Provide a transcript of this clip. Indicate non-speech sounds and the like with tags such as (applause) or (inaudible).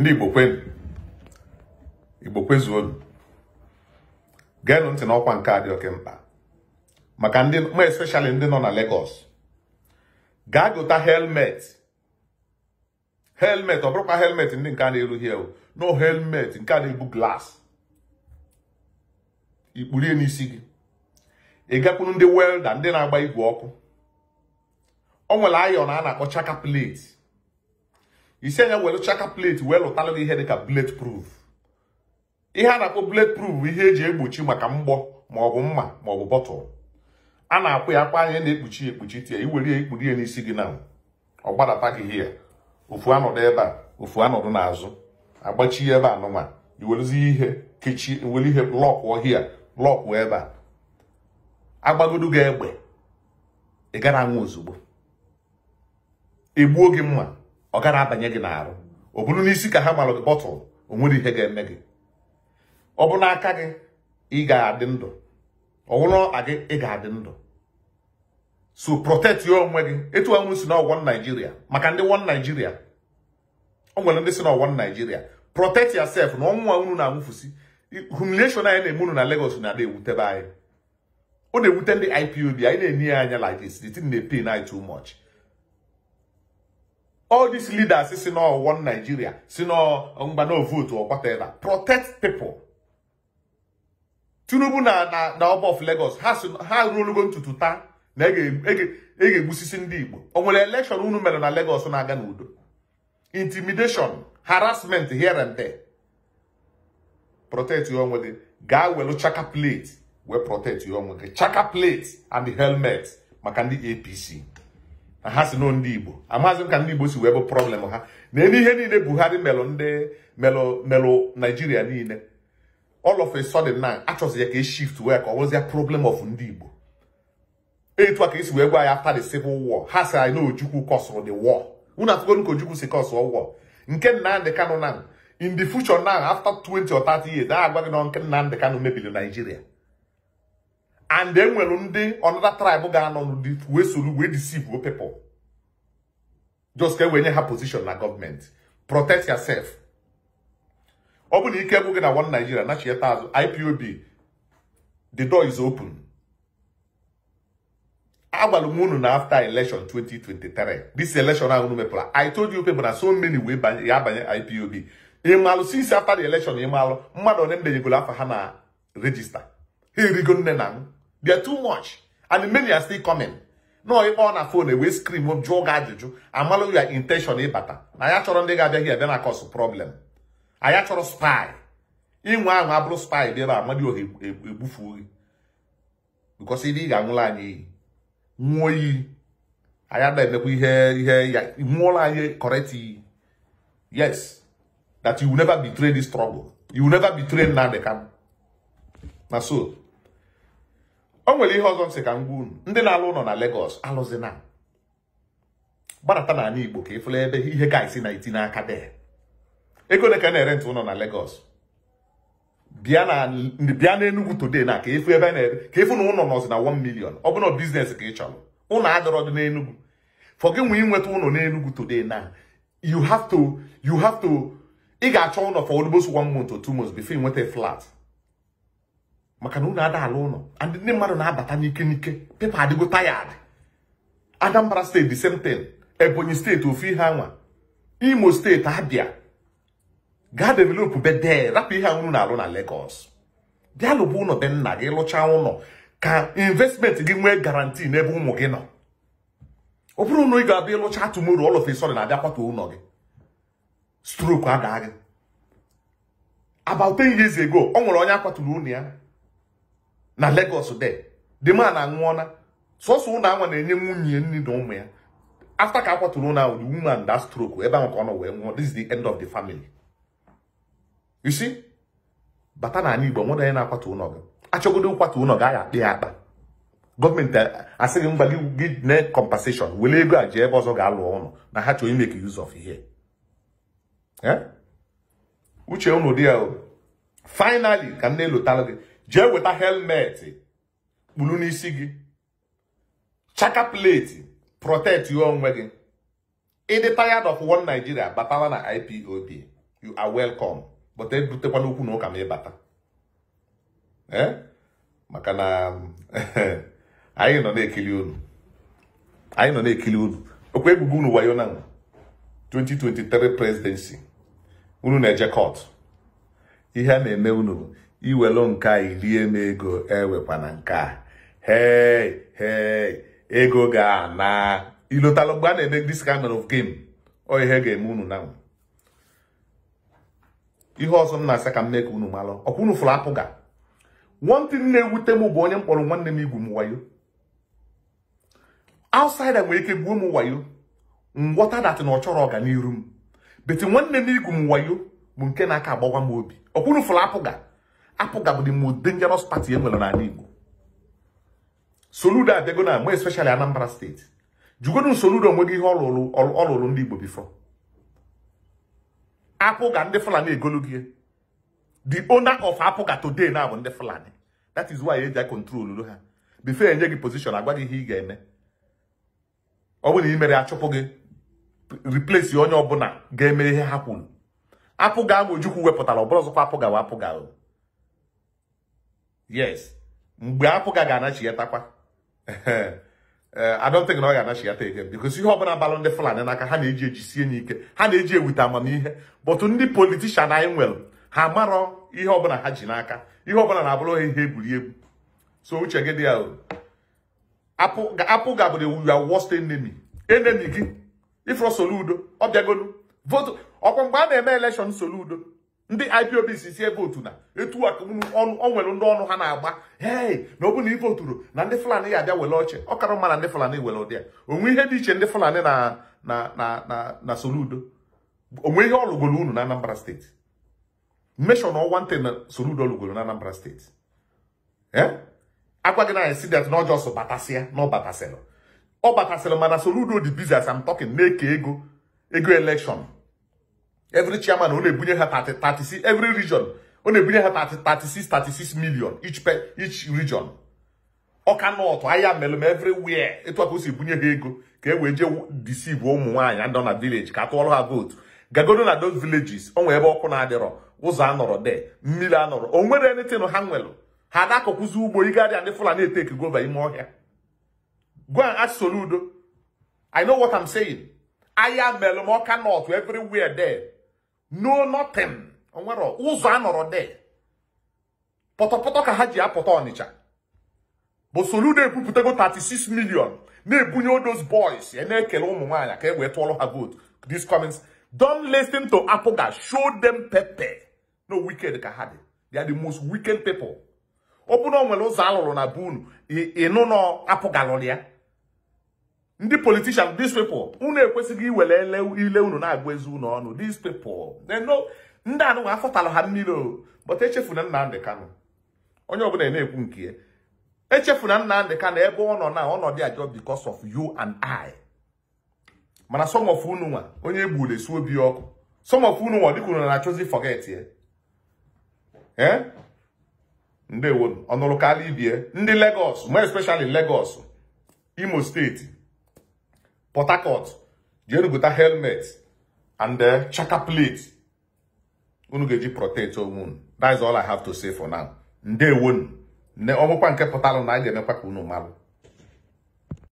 ndị igbo kwenu igbo kwezuolu geenụ ntị n'ọkwa nke a dị oke mkpa maka ndị ma especially ndị nọ na Lagos gaa gota helmet helmet ọ bụrụkwa helmet ndị nke a na-erughi ewu no helmet nke a na-ebu glasị ikpurie n'isi gị ị ndị welda ndị na-agba igwe ọkụ o nwere ayọn a na-akpọ chaka plate isi anya welụcha aka plate wee lụtalụ na ihe dịka blade proof ihe a na-akpọ blade proof bụ ihe eji egbochi maka mgbọ maọbụ mma maọbụ bọtụl a na-akwụ ya akwa anya na-ekpuchi ekpuchi tie iwere ya ikpuri ya n'isi gị na ọ gbadata gị hia ofu anọdụ ebe a ofu anọdụ n'azụ agbachi ebe anụma iweluzi ihe kechi were ihe lọkụọ hia lọkụọ ebe a agbagodu gị egbe ị gara anwụ ozugbo egbuo gị mma ọ gara abanye gị n'arụ ọ bụrụ n'isi ka ha malụ gị bọtụl o nwere ihe ga-eme gị ọ bụ n'aka gị ị ga-adị ndụ ọ bụrụ ọka gị ị ga-adị ndụ so protect your onwe gị etu anwụ si na ọwụwa Naijiria maka ndị wọn Naijiria o nwere ndị si na ọwụwa Naijiria protect ya sef na ọnwụnwa unu na-anwụfusi humiliation anyị na-eme unu na Lagos na-ada ewutebe anyị ọ na-ewute ndị IPOB anyị na-enye ya anya like this the na pain anyị too much all these leaders si no one Nigeria si na mgbana vote or whatever protect people Tinubu na na up of Lagos ha ruolugo ntutu taa na e ga-egbusisi ndị Igbo o nwere election unu mere na Lagos na-aga n'udo intimidation harassment here and there protect your own gị gaa welu chaka plate wee protect onwe gị chaka plate and helmet maka ndị APC ha si n'o ndị igbo amaghịzị m ka ndị igbo si wee bụ problem ha na elu ihe niile buhari melụ ndị melụ melụ naijiria niile all of a sudden now, achọzi ya ka e shift wee ka ọ bụrụzịa problem of ndị igbo etu a ka esi wee gwa ya after the civil war ha si anyị na ojukwu kọsụrụ the war unu atụgonu ka ojukwu si kọsụọ war nke nnamdị kanụ now, in the future now after 20 or 30 years a agwa gị na nke nnamdị kanụ mebiri naijiria and enwere ndị ọnụda tribe ga-anọ n'ụdị wee soro wee deceive people just ka e wee nye ha position na gọọmenti protect yourself ọ bụ na ike gwụ gị na one Nigeria nachieta azụ IPOB the door is open agwara m unu na after election 2023 this election ahụ unu mepụrụ I told you people na so many wee ya abanye IPOB ịmalụ since after the election ịmalụ mmadụ one mbenyegoro afọ ha na regista ha erigo nne na m they are too much. And many are still coming. No, if on a phone, we scream, we jog ajụjụ, amalu your intention ịbata. Na ya chọrọ ndị ga-abịa here, bịa na cause problem. anya chọrọ spy. Inwe ahụ abụrụ spy dị ebe a, mmadụ ohe e, e, egbufuo gị. Because ebe ị ga-anwụla anyị iyi. Nwụọ iyi. Anyị adaghị emekwa ihe ihe ya nwụọla anyị correct iyi. Yes. That you will never betray this struggle. You will never betray Nnamdi Kanu. Na so. o nwere ihe ọzọ m sị ka m gwa ndị na-alụ ụlọ na Lagos alụzina gbadata n'ala Igbo ka ịfụla ebe ihe ka isi na iti n'aka de ego ole ka na-ere ntụ ụlọ na Lagos bịa na Enugu today na ka ịfụ ebe ka ịfụ na ụlọ nọzi na 1 million ọ bụrụ biznes ka ị chọrọ ụlọ adọrọ dị n'Enugu for gị nwee ụlọ n'Enugu today na you have to you have to ị ga-achọ ụlọ for almost one month or two months before ị nweta flat maka na unu ada ala ụlọ ndị mmadụ na-abata n'ike n'ike pepa adịgo tayad Anambra steeti semten Ebonyi steeti ofu ihe anwa Imo steeti Abia gaa developu bede rapụ ihe anwụrụ na-alụ na Lagos bịa ụlọ be nna gị lụchaa ụlọ ka investment gị nwee garanti n'ebe ụmụ gị nọ ọ bụrụ na ị ga-abịa ịlụcha tụmoro all of na-abịa ụlọ gị stroke adaa gị about ten years ago ọ nwere onye akwaturu ụlọ ya na Lagos de the man anwụọna sọsọ ụlọ anwa na-enye nwunye nne na ụmụ ya after ka akwatụrụ na the woman that stroke ebe ahụ ka ọ nọ wee nwụọ this is the end of the family you see bata na ala Igbo nwere onye na-akwatu ụlọ gị achọgodo nkwatu ụlọ gị a akpa ya akpa gọọmenti eh, asịghị gị mgba gị na compensation were ego a ji ebe ọzọ ga-alụ ụlọ na ha chọrọ imeke use of ihe eh? uche unu dị ya finally ka nne elotalụ gị jee weta helmeti kpuru n'isi gị chaka pleti protect your onwe gị ịdị tired of one Nigeria batala na ipop you are welcome but ebutekwana okwu na ụka ma ịbata e? maka na (laughs) anyị nọ na-ekili unu anyị nọ na-ekili unu okwu ebubo unu wayo na 2023 presidency unu na-eje kot ihe a na-eme unu iwelu nke a irie m ego ewekwana nke a hei hei ego ga-ana ilotalụ mgbe a na-eme this kind of game ọ ihe ga-eme unu na ihe ọzọ m na-asa ka m mee ka unu malụ ọkwa unu fụrụ apụ ga nwantị na-ewute m bụ onye mkpọrọ nwanne m igwu m wayo outsider nwere ike gwuo m wayo ngwọta datị na ọ chọrọ ọganiru m beti nwanne m igwu m wayo bụ nke na-aka agbawa m obi ọkwa unu fụrụ apụ ga apụga bụ most dangerous party e nwere n'ala Igbo Soludo abịago na mgbe especially Anambra steeti jugonu Soludo onwe gị ihe ọlụlụ ndị Igbo bifo Apụga ndị Fulani egolu gị the owner of Apụga today na bụ ndị Fulani that is why eji control ha before enye gị position agwa gị ihe ị ga-eme ọ bụ na ị mere achụpụ gị replace onye ọbụla ga-eme ihe ha kwuru apụga ahụ Ojukwu wepụtara ọbụla ọzọkwa apụga wa apụga yes mgbe apụga ga-anachiatakwa eh, I don't think na ọ ga-anachiata ege because ihe ọbụla balụ ndị Fulani n'aka ha na-eji ejisie ya ike ha na-eji ewute amamihe but ndị politishan anyị nwere ha marọ ihe ọbụla ha ji n'aka ihe ọbụla na-abụrụ ha ihe egwuri egwu so uche gị dị ahụ apụ gabụrụ your worst enemy enemi gị ifrọ Soludo ọ bịagolu votu ọkwa mgbe a na-eme elekshọn Soludo ndị ipob si sie votu na etu aka o nwere ndị ọnụ ha na-agba hei na ọ bụ na ị voturu na ndị fulani ya abịa were ọchị ọ kara mma na ndị fulani were ụdị ya onwe ihe dị iche ndị fulani na na na na soludo onwe ihe ọ unu na anambra steeti mmeshọ na ọnwa ntị na soludo lụgoro na anambra steeti eh? agwa gị na si that na ọjọọ sọ batasịa na ọ batasịrị ọ batasịrị mana soludo dị bizas am talking na-eke ego ego elekshọn every chairman ọ na-ebunye ha 36 every region ọ na-ebunye ha 36 36 million each per each region ọka nọtụ ahịa melụm everywhere etu aka o si bunye ha ego ka e wee jee deceive ụmụ nwaanyị nọ na village ka atụọrọ ha vootu gagodo na those villages ọ nwere ebe ọkụ na-adịrọ ụzọ anọrọ de mmiri anọrọ o nwere anything ha nwelụ ha dakọkwụzi ugbo igharịa ndị fulani eteki gova ime ọhịa gwa and ask i know what i'm saying ahịa melụm ọka nọtụ everywhere there no nothing nwere ụzọ a nọrọ de pọtọpọtọ ka ha ji apụta ọnịcha bụ Soludo ekwupụtago 36 million na-ebunye odos boys ya na-ekele ụmụ nwaanyị ka e wee tụọrọ ha vote this comments don't listen to Apụga show them pepe no wicked ka ha dị they are the most wicked people ọ bụ na nwere ụzọ alụrụ na be ịnụ na apụgalụrụ ya ndị politician these people unu ekwesịghị iwere ile unu na-agwa ezi unu ọnụ these people ndị anụnwa afọtalụ ha mmiri o but echefuna Nnamdi Kanu onye ọbụla na-ekwu nke ya echefuna ndị Kanu ebe ọ nọ na ọnọdụ ajọ because of you and I mana some of unu nwa onye egburu esi obi ọkụ some unu nwa dịka unu na-achọzi forget ya eh? ndị ndewonu ọnụrụ karịa ibie ndị Legos more especially Legos Imo steeti port harcourt jee helmet and chaka plate unu eji protect onwe unu that is all i have to say for now ndewonu ọmụkwa nke pụtalụ na a ga-emekwa ka